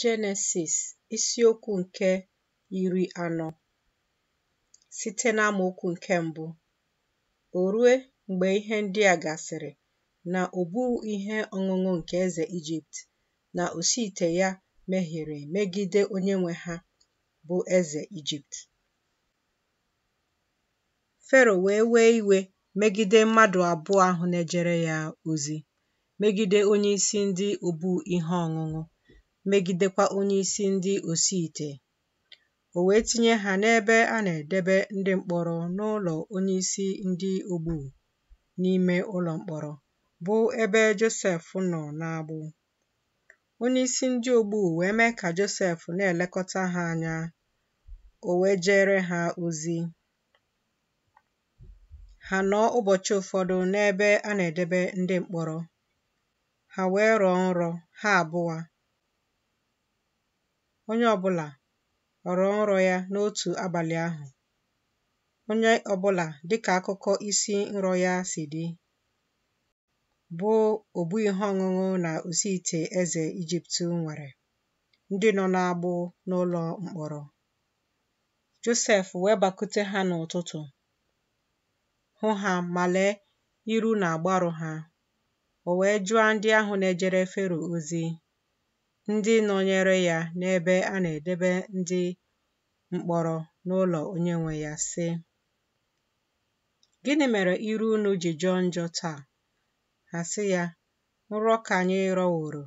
Jenesis isiokwu nke iri anọ site n'amaokwu nke mbụ O rue mgbe ihe ndị a gasịrị na o ihe ọṅụṅụ nke eze Ijipt na osiite ya mehiere megide onye nwe ha bụ eze Ijipt. Fero wee wee iwe megide mmadụ abụọ ahụ na-ejere ya ozi, megide onye isi ndị obu ihe ọṅụṅụ megidekwa onyeisi ndị osiite o wee tinye ha n'ebe a na-edebe ndị mkpọrọ n'ụlọ onyeisi ndị ogbu n'ime ụlọ mkpọrọ bụ ebe Josef nọ na n'agbụ onyeisi ndị ogbu wee mee ka Josef na-elekọta ha anya o wee jere ha ozi ha nọ ụbọchị ụfọdụ n'ebe a na-edebe ndị mkpọrọ ha wee rọọ nrọ ha abụọ Onye ọbụla ghọrọ nrọ ya n'otu abalị ahụ, onye ọbụla dịka akụkọ isi nrọ ya si dị, bụ ogbu ihe ọṅụṅụ na Oziite eze Ijipt nwere ndị nọ n'agbụ n'ụlọ mkpọrọ. Josef wee bakute ha n'ụtụtụ, hụ ha ma lee iru na agbaru ha. O wee jụọ ndị ahụ na-ejere Fero ozi ndị nọnyere ya n'ebe a na-edebe ndị mkpọrọ n'ụlọ onye nwe ya sị gịnị mere iru unu ji jọ njọ taa ha sị ya nrọ ka anyị rọworo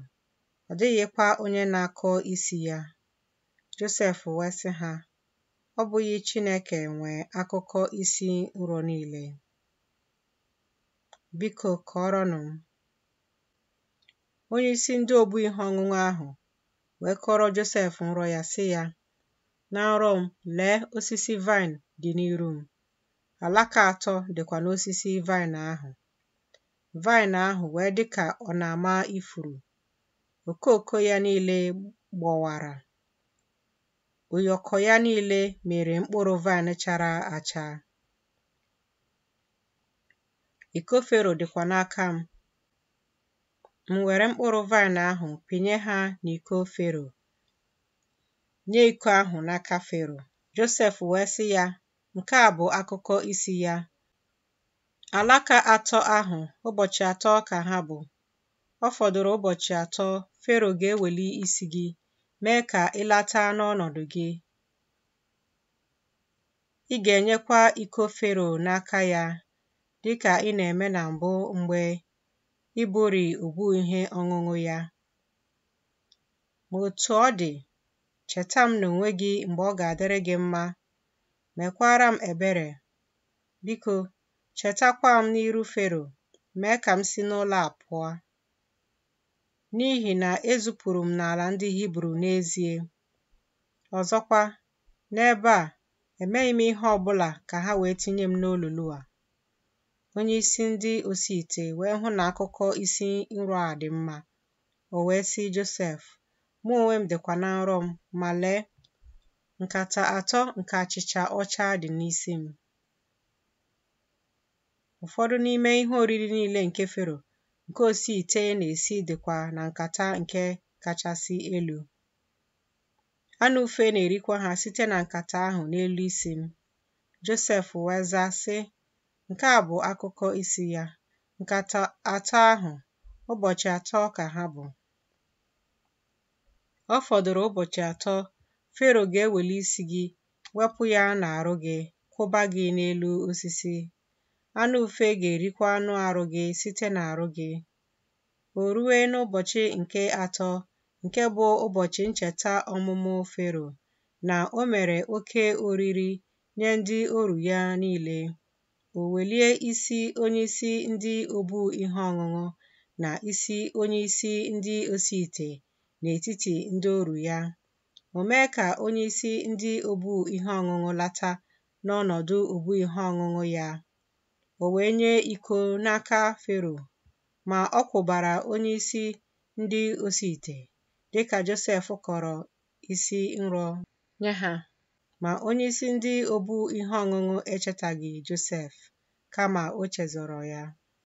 ọ dịghịkwa onye na-akọ isi ya Josef wee ha ọ bụghị Chineke nwee akụkọ isi nrọ niile biko kọọrọnụ m Onye isi ndị obu ihe ọṅụṅụ ahụ wee kọrọ Josef nrọ ya sị ya na nrọ m lee osisi vaịn dị n'iru m alaka atọ dịkwa n'osisi vaịn ahụ vaịn ahụ wee dị ka ọ na-ama ifuru okooko ya niile gbọwara ụyọkọ ya niile mere mkpụrụ vaịn chara acha iko fero dịkwa n'aka m M were mkpụrụ vaịn ahụ pinye ha n'iko Fero, nye iko ahụ n'aka Fero. Josef wee sị ya, nke a bụ akụkọ isi ya. Alaka atọ ahụ, ụbọchị atọ ka ha bụ. Ọ fọdụrụ ụbọchị atọ Fero ga-eweli isi gị, mee ka ịlata n'ọnọdụ gị. Ị ga-enyekwa iko Fero n'aka ya, dịka ị na-eme na mbụ mgbe ibụri ugwu ihe ọṅụṅụ ya ma otu ọ dị cheta m na onwe gị mgbe ọ ga-adịrị gị mma mekwara m ebere biko chetakwa m n'iru Fero mee ka m si n'ụlọ a pụọ n'ihi na ezupụrụ m n'ala ndị Hibru n'ezie ọzọkwa n'ebe a emeghị m ihe ọ bụla ka ha wee tinye m n'olulu a Onye isi ndị osiite wee hụ na akụkọ isi nrọ a dị mma. O wee sị Josef, mụ onwe m dịkwa na nrọ m, ma lee, nkata atọ nke achịcha ọcha dị n'isi m. Ụfọdụ n'ime ihe oriri niile nke Fero nke osiite na-esi dịkwa na nkata nke kachasị elu. Anụ ufe na-erikwa ha site na nkata ahụ n'elu isi m. Josef wee sị, Nke a bụ akụkọ isi ya: Nkata atọ ahụ, ụbọchị atọ ka ha bụ. Ọ fọdụrụ ụbọchị atọ, Fero ga-eweli isi gị, wepụ ya n'arụ gị, kwụba gị n'elu osisi. Anụ ufe ga-erikwa anụ arụ gị site n'arụ gị. O ruwe n'ụbọchị nke atọ, nke bụ ụbọchị ncheta ọmụmụ Fero, na o mere oke oriri nye ndị oru ya niile. o welie isi onyeisi ndị obu ihe ọṅụṅụ na isi onyeisi ndị osiite n'etiti ndị ọrụ ya, o mee ka onyeisi ndị obu ihe ọṅụṅụ lata n'ọnọdụ obu ihe ọṅụṅụ ya. O wee nye iko n'aka Fero, ma ọ kwụbara onyeisi ndị osiite dịka Josef kọrọ isi nrọ nye ha. Ma onyeisi ndị obu ihe ọṅụṅụ echetaghị Josef, kama o chezọrọ ya.